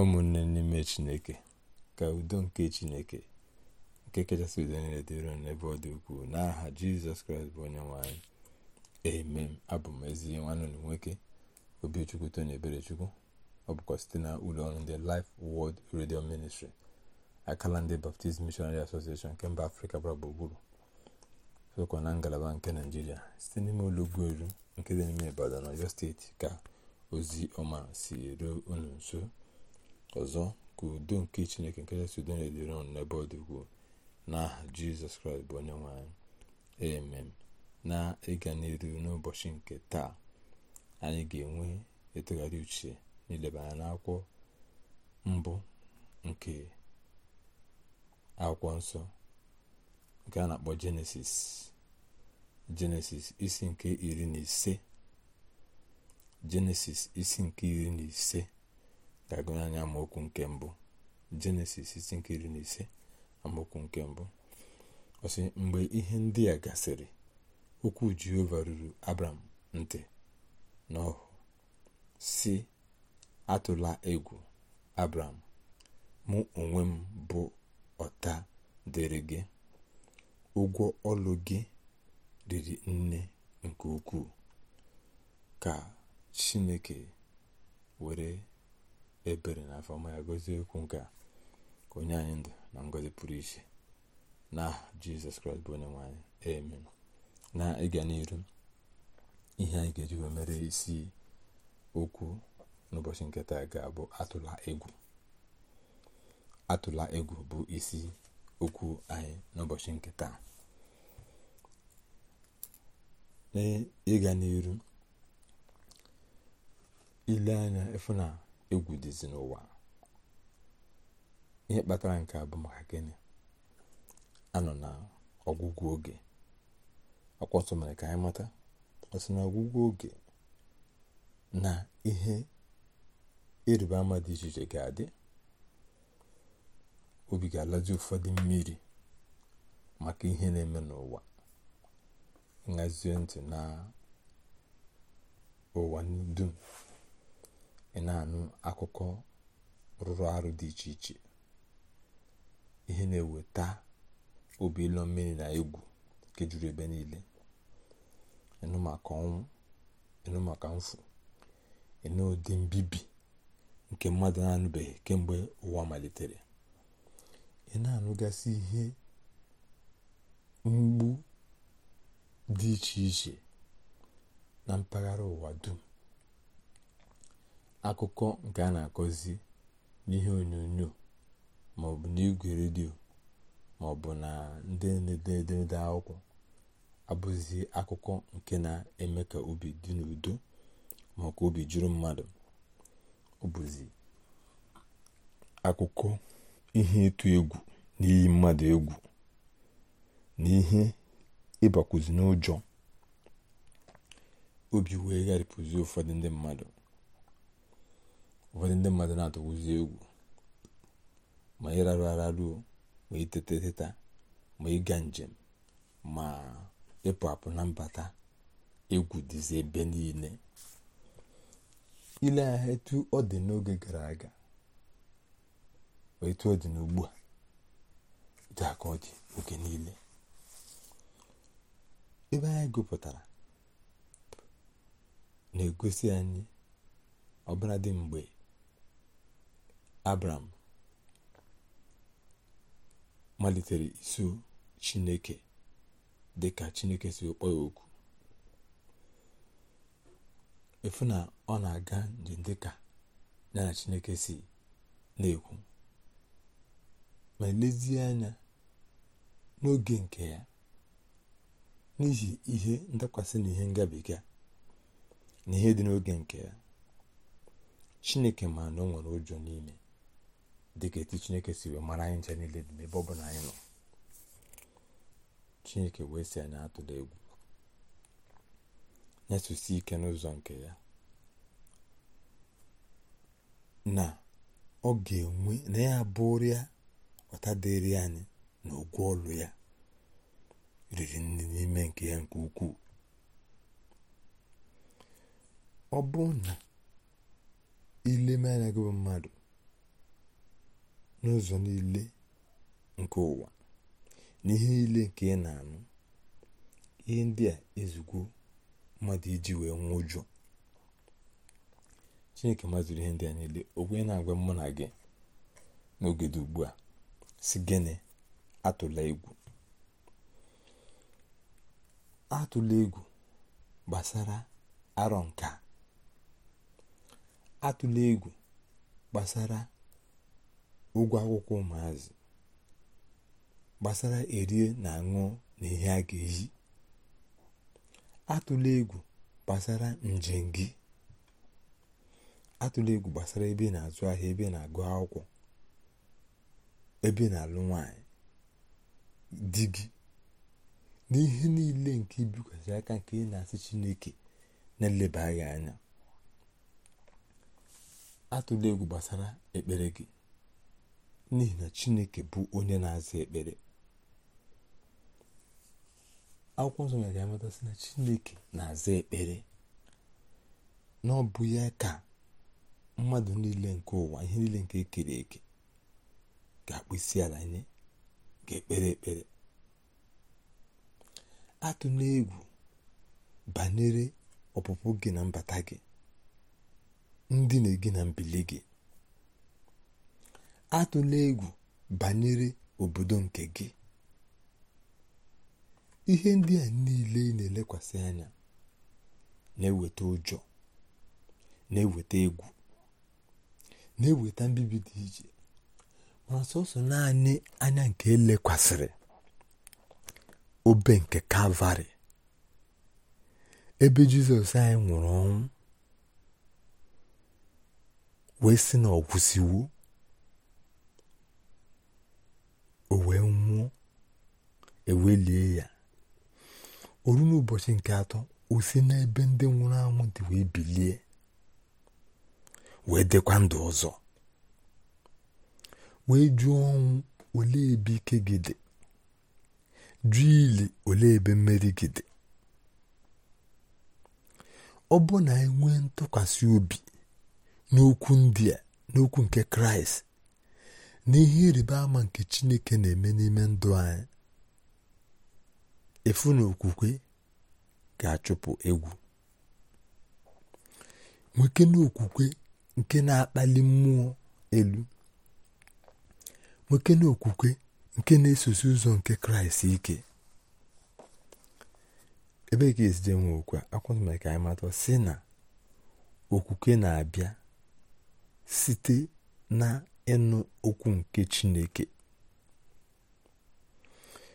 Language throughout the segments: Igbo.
ụmụnne n'ime chineke ka udo nke chineke nke kachasị udo niile dịrị n'ebe ọ dị ukwuu n'aha jizọs kraịst bụ onye nwanyị emem abụ m ezi nwanne nwoke obichukwu tony eberechukwu ọ bụkwa site na ụlọ ọrụ ndị life wọld redio ministri akala ndị baptist missionary association nke mba afrịka gbara gburugburu sokwa na ngalaba nke naijiria site n'ime ụlọ ụgbọelu nke dị n'ime ibadan ọyọ steeti ka ozi ọma si ruo unu nso ọzọ ka udo nke chineke nke kachasị udo na-edere ọnụ n'ebe ọ dị ukwuu n'aha jizọs kraịst bụ onye nwe anyị emem na ịga n'iru n'ụbọchị nke taa anyị ga-enwe ịtụgharị uche n'ileba anya n'akwụkwọ mbụ nke akwụkwọ nsọ nke a na-akpọ jenesis jenesis isi nke iri na ise jenesis isi nke iri na ise ga-agụnye nke mbụ jenesis isi nkiri na ise amaokwu nke mbụ ọsị mgbe ihe ndị a gasịrị okwu jehova ruru abram ntị n'ọhụ si atụla egwu abram mụ onwe m bụ ọta dịrị gị ụgwọ ọlụ gị riri nne nke ukwuu ka chineke were ebere na afọma ya gọzie okwu nke a ka onye anyị ndụ na ngọzi pụrụ iche na jizọs kraịst bụ onye nwanyị amen na ịga n'iru ihe anyị ga-eji mere isi okwu n'ụbọchị nke taa ga-abụ atụla egwu atụla egwu bụ isi okwu anyị n'ụbọchị nke taa ịga n'iru ile anya ịfụ na egwu dịzi n'ụwa ihe kpatara nke a bụ maka gịnị anọ na ọgwụgwụ oge akwọsọ mere ka anyị mata ọsị na ọgwụgwụ oge na ihe ịrịba ama dị iche iche ga-adị obi ga-alazi ụfọdụ mmiri maka ihe na-eme n'ụwa nhazie ntị na ụwa dum ị na-anụ akụkọ rụrụ arụ dị iche iche ihe na-eweta obi ịlọ mmiri na egwu nke ebe niile ịnụ maka ọnwụ ịnụ maka mfu ịnụ ụdị mbibi nke mmadụ na-anụbeghị kemgbe ụwa malitere ị na-anụgasị ihe mgbu dị iche iche na mpaghara ụwa dum akụkọ nke a na-akọzi n'ihe onyonyo maọbụ n'igwe redio maọbụ na ndị na-ede edemede akwụkwọ abụzi akụkọ nke na-eme ka obi dị n'udo ma obi juru mmadụ ọbụzi akụkọ ihe ịtụ egwu na mmadụ egwu na ihe ịbakwuzi n'ụjọ obi wee gharịpụzi ụfọdụ ndị mmadụ ụfọdụ ndị mmadụ na-atụwụzi egwu ma ịrarụ araruo ma itete teta ma ịga njem ma ịpụ apụ na mbata egwu dịzi ebe niile ile ahịa etu ọ dị n'oge gara aga etu ọ dị n'ugbu a etu aka ọ oge niile ebe anyị gụpụtara na-egosi anyị ọbụladị mgbe abram malitere iso chineke dị ka chineke si kpọ ya okwu efu na ọ na-aga njem dịka ya na chineke si na-ekwu ma lezie anya n'oge nke ya n'ihi ihe ndakwasị na ihe ngabiga na ihe dị n'oge nke ya chineke ma na o nwere ụjọ n'ime dịka etu chineke si mara anyị nche niile dị n'ebe ọ bụla anyị nọ chineke wee si anyị atụla egwu nyesụsi ike n'ụzọ nke ya na ọ ga-enwe na ya bụrụ ya ọta dịrị anyị na ogwu ọlụ ya riri nri n'ime nke ya nke ukwuu ọ bụ na ile anya gị mmadụ n'ụzọ niile nke ụwa n'ihe niile nke ị na-anụ ihe ndị a ezugbo mmadụ iji wee nwee ụjọ chineke maziri ihe ndị a niile o na-agwa mụ na gị n'oge ugbu a si gịnị atụla egwu atụla egwu gbasara arọ nka atụla egwu gbasara ụgwọ akwụkwọ ụmụazị gbasara erie na aṅụ na ihe a ga-eyi atụla egwu gbasara njem gị atụla egwu gbasara ebe na-azụ ahịa ebe na-agụ akwụkwọ ebe ị na-alụ nwanyị di gị n'ihe niile nke ibikwasị aka nke ị na-asị chineke na-eleba gị anya atụla egwu gbasara ekpere gị n'ihi na chineke bụ onye na-aza ekpere akwụkwọ nsọ nyere amatasị na chineke na-aza ekpere na ọ ya ka mmadụ niile nke ụwa ihe niile nke ekere eke ga-akpụ isi ala nye ga-ekpere ekpere atụ egwu banyere ọpụpụ gị na mbata gị ndị na-egi na mbili gị atụla egwu banyere obodo nke gị ihe ndị a niile ị na-elekwasị anya na-eweta ụjọ na-eweta egwu na-eweta mbibi dị iche mana sọsọ naanị anya nke elekwasịrị obe nke kalvarị ebe jizọs anyị nwụrụ ọnwụ wee sị na ọ o wee nwụọ ewelie ya oru n'ụbọchị nke atọ o e e e si n'ebe ndị nwụrụ anwụ dị wee bilie wee dịkwa ndụ ọzọ wee jụọ ọnwụ ole ebe ike gị dị jụọ ili ole ebe mmeri gị dị ọ bụ na enwee ntụkwasị obi n'okwu ndị a n'okwu nke kraịst n'ihe ịrịba ama nke chineke na-eme n'ime ndụ anyị efu na okwukwe ga-achụpụ egwu nwoke na okwukwe nke na-akpali mmụọ elu nwoke na okwukwe nke na-esosi ụzọ nke kraịst ike ebe ka esije nwe okwu akwụna mere ka anyị si na okwukwe na-abịa site na ịnụ okwu nke Chineke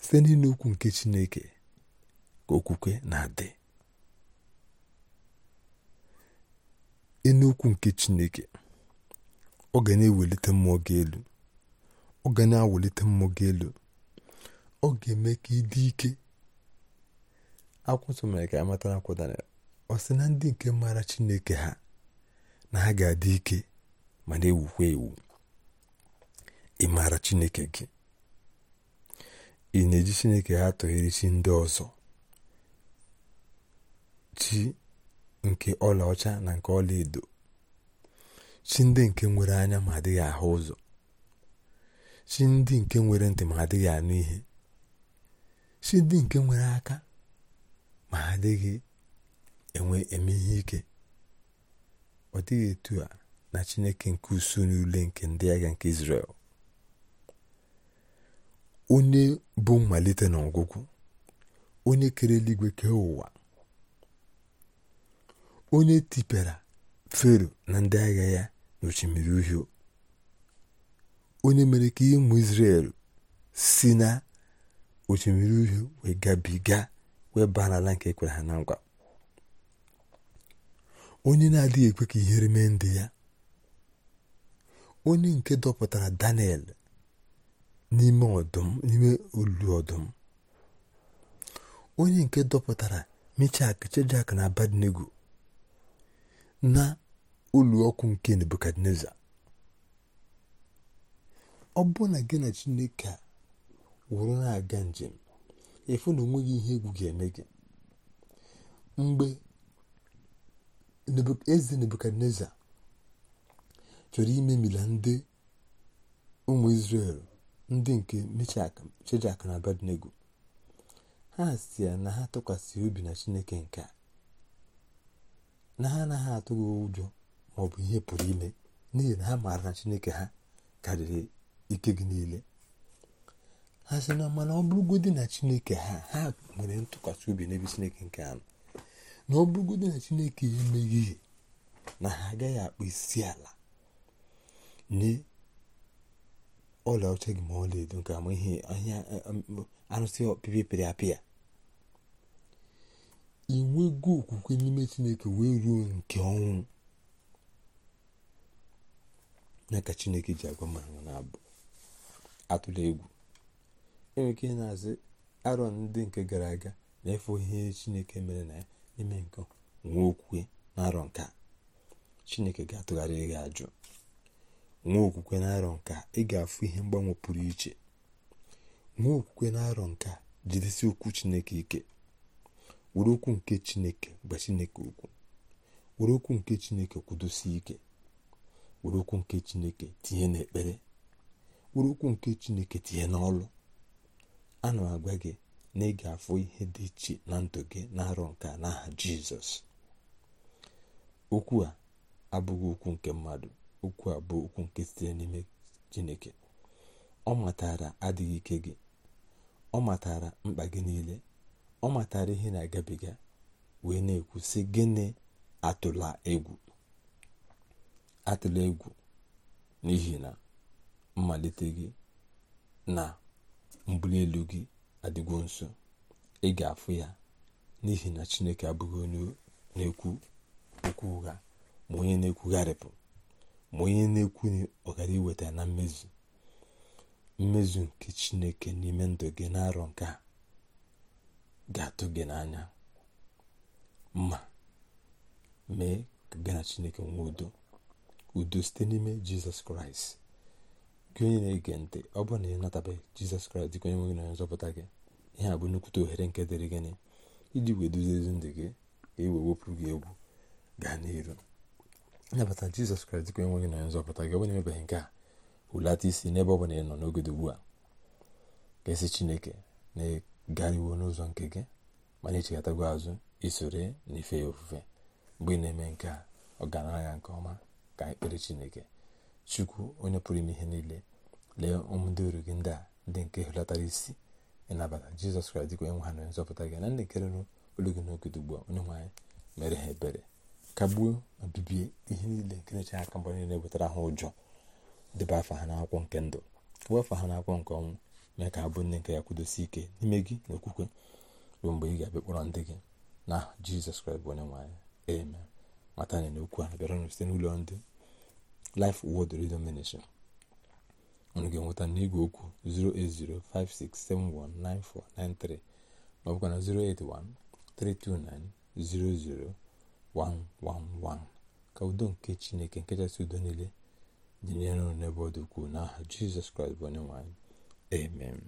site n'ịnụ okwu nke Chineke ka okwukwe na-adị ịnụ okwu nke Chineke ọ ga na-ewelite mmụọ gị elu ọ ga na-awelite mmụọ gị elu ọ ga-eme ka ị dị ike akwụsị mere ka amata na akwụ ọ sị na ndị nke maara Chineke ha na ha ga-adị ike ma na-ewukwa ewu ị maara chineke gị ị na-eji chineke ha tụghere chi ndị ọzọ chi nke ọlaọcha na nke ọlaedo chi ndị nke nwere anya ma adịghị ahụ ụzọ chi ndị nke nwere ntị ma adịghị anụ ihe chi ndị nke nwere aka ma adịghị enwe eme ihe ike ọ dịghị etu a na chineke nke usu n'ule nke ndị agha nke israel. onye bụ mmalite na ọgwụgwụ onye kere eluigwe kee ụwa onye tipere fero na ndị agha ya n'ochimiri uhie onye mere ka ụmụ isrel si na osimiri uhie wee gabiga wee baa nke ekwere ha na ngwa onye na-adịghị ekwe ka ihere mee ndị ya onye nke dọpụtara Daniel n'ime ọdụm olu ọdụm onye nke dọpụtara mechak chejak na abadnego na olu ọkụ nke nebukadneza ọ bụ na gị na chineke wụrụ na-aga njem efu na onweghị ihe egwu ga-eme gị mgbe eze nebukadneza chọrọ ime mila ndị ụmụ isrel ndị nke meshak shedrak na abednego ha si na ha tụkwasị obi na chineke nke a na ha anaghị atụghị ụjọ maọbụ ihe pụrụ ime n'ihi na ha maara na chineke ha karịrị ike gị niile ha sị na mana ọ bụrụgodị na chineke ha ha nwere ntụkwasị obi n'ebe chineke nke anọ na ọ bụrụgodị na chineke emeghị na ha agaghị akpụ isi ala ọla ọcha gị ma ọla edo nke ama ihe ahịa eh, arụsị ọpịpị pịrị apịa inwego okwukwe n'ime chineke wee ruo nke ọnwụ na ka chineke ji agwa m ahụ na-abụ atụla egwu enwere ike na azị arọ ndị nke gara aga na-efe ihe chineke mere na ya n'ime nke nwa okwukwe na arọ nke chineke ga-atụgharị gị ajụ nwa okwukwe na-arọ nka ị ga-afụ ihe mgbanwe pụrụ iche nwa okwukwe na-arọ nka jidesi okwu chineke ike were okwu nke chineke gba chineke okwu were okwu nke chineke kwudosi ike were okwu nke chineke tinye n'ekpere were okwu nke chineke tinye n'ọlụ ana m agwa gị na ị ga-afụ ihe dị iche na ndụ gị na-arọ nka n'aha jizọs okwu a abụghị okwu nke mmadụ okwu a bụ okwu nke sitere n'ime chineke ọ matara adịghị ike gị ọ matara mkpa gị niile ọ matara ihe na-agabiga wee na-ekwu sị gịnị atụla egwu n'ihi na mmalite gị na mbuli elu gị adịgwo nso ị ga-afụ ya n'ihi na chineke abụghị onye na-ekwu okwu ụgha ma onye na-ekwugharịpụ ma onye na ekwu ọ gara iweta na mmezu mmezu nke chineke n'ime ndụ gị na-arọ nke a ga-atụ gị n'anya ma mee ka gị na chineke nwee udo udo site n'ime jizọs kraịst gị onye na-ege ntị ọ bụrụ na ị natabeghị jizọs kraịst dịka onye nwe gị nzọpụta gị ihe a bụ nnukwute ohere nke dịrị gịnị iji wee duzie ezi ndụ gị ka e wee wepụrụ gị egwu gaa n'iru nabata jizọs kraịst dịka enweghị na nzọpụta gị onye emebeghị nke a hulata isi n'ebe ọ bụla ị nọ n'oge ugbu a ga-esi chineke na-egariwo n'ụzọ nke gị ma na-echeghatago azụ isoro ife ya ofufe mgbe ị na-eme nke a ọgaranya nke ọma ka ekpere chineke chukwu onye pụrụ ime ihe niile lee ụmụ ndị oru gị ndị a ndị nke hulatara isi ịnabata jizọs kraịst dịka ha na nzọpụta gị na ndị nke rụrụ olu gị n'oge ugbu a onye nwe anyị mere ha ebere kagbuo ma bibie ihe niile nke na-eche aka mgbe niile wetara ha ụjọ debe afa ha n'akwụkwọ nke ndụ wee afọ ha n'akwụkwọ nke ọnwụ mee ka abụ nne nke ya kwudosi ike n'ime gị na okwukwe ruo mgbe ị ga-abịa kpọrọ ndị gị na jizọs kraịst bụ onye nwanyị eme mata na n'okwu a bịaranụ site n'ụlọ ndị Life Word Radio minishin unu ga-enweta n'igwe okwu 08056719493 ma ọ bụkwa na 081 329 00 wan ka udo nke chineke nke kachasị udo niile dịnyere n'ebe ọ dị ukwuu n'aha jizọs kraịst bụ onye nwe amen